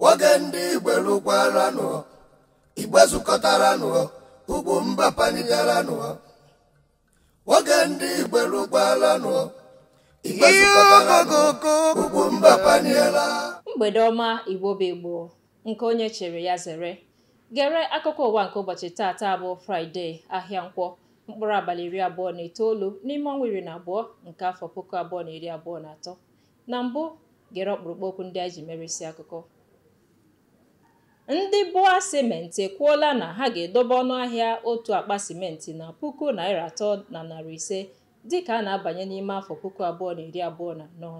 nwoke ndị igwe lụkwaranụ igbe zụkọtaranụ ugwu mba panigaranụ nwoke ndị igwe lụkwaranụ igbe zụkọtaranụ ugwu mba paniela mgbede ọma igbo bụ igbo nke onye chere ya zere gere akụkọ ụwa nke ụbọchị taata bụ fraịde ahịa nkwọ mkpụrụ abalị iri abụọ na itoolu n'ime ọnwa iri na abụọ nke afọ puku abụọ na iri abụọ na atọ na mbụ gere ọkpụrụkpụ okwu ndị anyị ji merisi akụkọ ndị bụa simenti ekwuola na ha ga-edobe ọnụahịa otu akpa simenti na puku naira atọ na narị ise dịka a na-abanye n'ime afọ puku abụọ na iri abụọ na anọ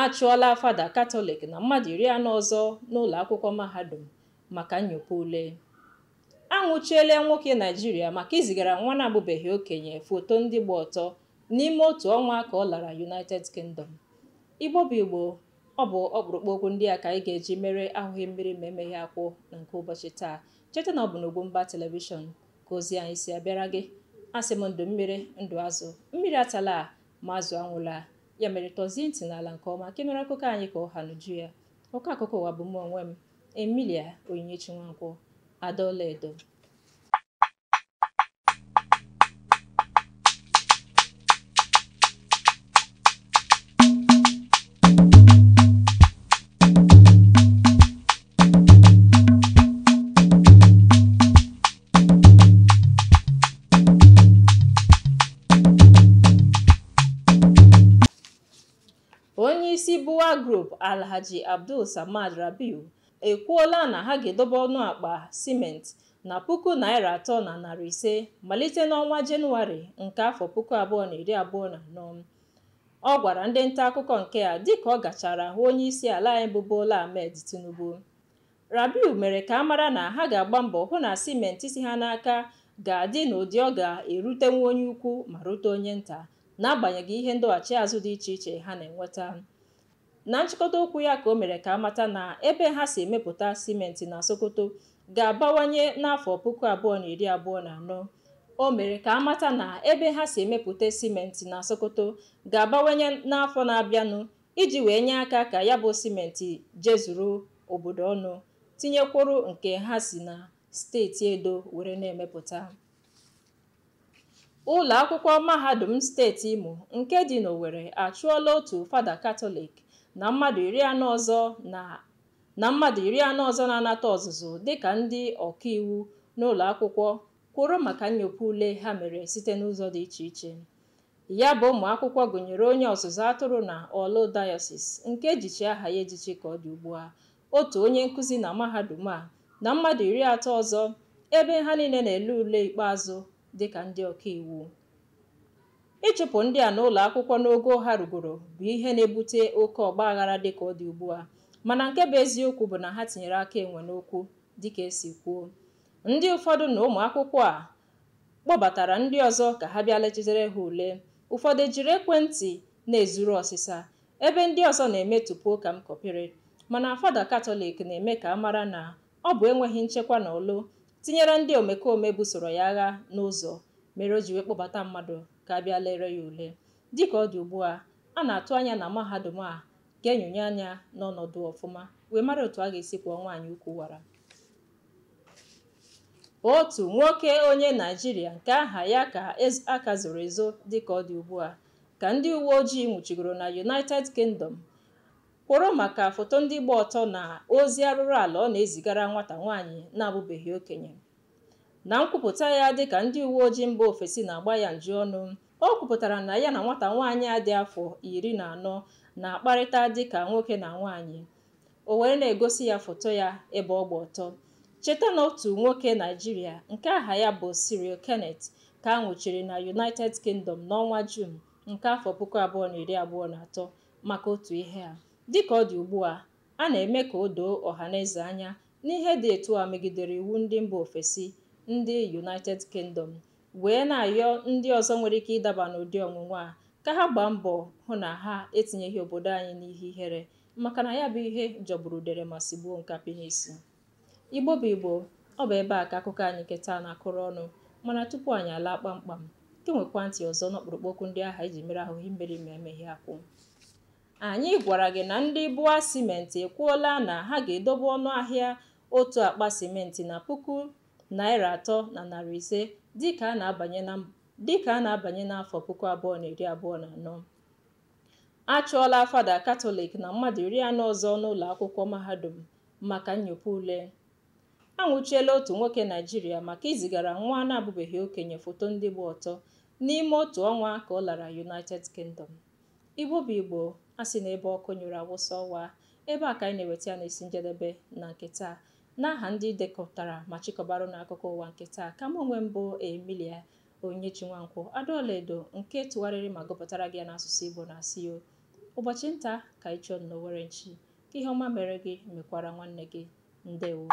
a chụọla fada katọlik na mmadụ iri anọ ọzọ n'ụlọ akwụkwọ mahadum maka nyopa ule a nwụchiela nwoke naijiria maka izigara nwa na-abụbeghị okenye foto ndị gba ọtọ n'ime otu ọnwa ka ọ lara united kingdom igbo bụ igbo ọ bụ ọkpụrụkpụ okwu ndị a ka anyị ga-eji mere ahụghị mmiri ma emeghe akwụ na nke ụbọchị taa cheta na ọ bụ mba telivishọn ka ozi anyị si abịara gị asị m ndụ mmiri ndụ azụ mmiri atala ma azụ anwụla ya mere tọzie ntị n'ala nke ọma nke mere akụkọ anyị ka ọha n'uju ya ụkọ akụkọ ụwa bụ m onwe m Emilia Onyinyechi Nwankwọ Adaọla Edo Europe Alhaji Abdul Samad Rabiu ekwuola na ha ga-edobe ọnụ akpa siment na puku naira atọ na narị ise malite n'ọnwa Jenụwarị nke afọ puku abụọ na iri abụọ na anọ ọ gwara ndị nta akụkọ nke a dịka ọ gachara hụ onye isi ala anyị bụ Bola Ahmed Tinubu Rabiu mere ka a mara na ha ga-agba mbọ hụ na siment si ha n'aka ga-adị n'ụdị ọ ga-erutenwu onye ukwu ma rute onye nta n'agbanyeghị ihe ndọghachi azụ dị iche iche ha na-enweta na nchịkọta okwu ya ka o mere ka amata na ebe ha si emepụta simenti na Sokoto ga-abawanye n'afọ puku abụọ na iri abụọ na anọ o mere ka amata na ebe ha si emepụta simenti na Sokoto ga-abawanye n'afọ na-abịanụ iji wee nye aka ka ya bụ simenti jezuru obodo ọnụ tinyekwuru nke ha si na steeti Edo were na-emepụta ụlọ akwụkwọ mahadum steeti Imo nke dị n'owere achụọla otu fada Katọlik na mmadụ iri anọ ọzọ na na mmadụ iri anọ ọzọ na-anata ọzụzụ dịka ndị ọkaiwu n'ụlọ akwụkwọ kwụrụ maka nnyopụ ule ha mere site n'ụzọ dị iche iche ya bụ ụmụ akwụkwọ gụnyere onye ọzụzụ atụrụ na ọlụ dayosis nke ejichi aha ya ejichi ka ọ dị ugbu a otu onye nkụzi na mahadum a na mmadụ iri atọ ọzọ ebe ha niile na-ele ule ikpeazụ dị ka ndị ọkaiwu ịchụpụ ndị a n'ụlọ akwụkwọ n'ogo ha rugoro bụ ihe na-ebute oke ọgba aghara dịka ọ dị ugbu a mana nke bụ eziokwu bụ na ha tinyere aka enwe n'okwu dịka esi kwuo ndị ụfọdụ na ụmụ akwụkwọ a kpọbatara ndị ọzọ ka ha bịa lechitere ha ule ụfọdụ ejiri ekwentị na-ezuru ọsịsa ebe ndị ọzọ na tupu ka m kọpịrị mana fada katọlik na-eme ka a mara na ọ bụ enweghị nchekwa na olu tinyere ndị omekome busoro ya agha n'ụzọ mere o ji wee kpọbata mmadụ ka bịa lere ya ule dịka ọ dị ugbu a a na-atụ anya na mahadum a ga-enyonye anya n'ọnọdụ ọfụma wee mara otu a ga-esi kwụọ nwaanyị ukwu wara otu nwoke onye naijiria nke aha ya ka aka zoro ezo dịka ọ dị ugbu a ka ndị uwe ojii nwụchigoro na united kingdom kwụrụ maka foto ndị gba ọtọ na ozi arụrụ ala ọ na-ezigara nwata nwaanyị na-abụbeghị okenye na nkwupụta ya dịka ndị uwe ojii mba ofesi na-agba ya nju ọnụ o kwupụtara na ya na nwata nwaanyị a dị afọ iri na anọ na-akparịta dịka nwoke na nwaanyị o were na-egosi ya foto ya ebe ọ gba ọtọ cheta na otu nwoke naijiria nke aha ya bụ Cyril Kenneth ka a nwụchiri na United Kingdom n'ọnwa Jun nke afọ puku abụọ na iri abụọ na atọ maka otu ihe a dịka ọ dị ugbu a a na-eme ka o doo eze anya n'ihe dị etu a megidere iwu ndị mba ofesi ndị United Kingdom wee na-ayọ ndị ọzọ nwere ike ịdaba n'ụdị ọnwụnwa a ka ha gbaa mbọ hụ na ha etinyeghị obodo anyị n'ihe ihere maka na ya bụ ihe jọgburu dere ma gbuo nkapị n'isi Igbo bụ Igbo ọ bụ ebe a ka akụkọ anyị nketa na-akụrụ ọnụ mana tupu anyị alaa kpamkpam nke nwekwa ntị ọzọ n'ọkpụrụkpụ okwu ndị ahụ iji mere ahụhụ mmeri ma emeghị akwụ anyị gwara gị na ndị bụa simenti ekwuola na ha ga-edobe ọnụ ahịa otu akpa simenti na puku naira atọ na narị ise dịka a na-abanye n'afọ puku abụọ na iri abụọ na anọ a chụọla fada katọlik na mmadụ iri anọ ọzọ n'ụlọ akwụkwọ mahadum maka nnyopụ ule anwụchiela otu nwoke naijiria maka izigara nwa na-abụbeghị okenye foto ndị gba ọtọ n'ime otu ọnwa ka ọ lara united kingdom igbo bụ igbo a sị n'ebe ọkụ nyere awụsa ọwa ebe a ka anyị na-eweta ya na esi njedebe na nke taa N'aha ndị dekọtara ma chịkọbara n'akụkọ ụwa nke taa, ka m onwe mbụ emilia onye Onyechinwankwọ, Adaọra Edo nke tụgharịrị ma gụpụtara gị ya n'asụsụ Igbo na-asị ụbọchị nta ka ịchọ chọọ nnọọ were nchi, ka ihe ọma mere gị mekwara nwanne gị. Ndewo.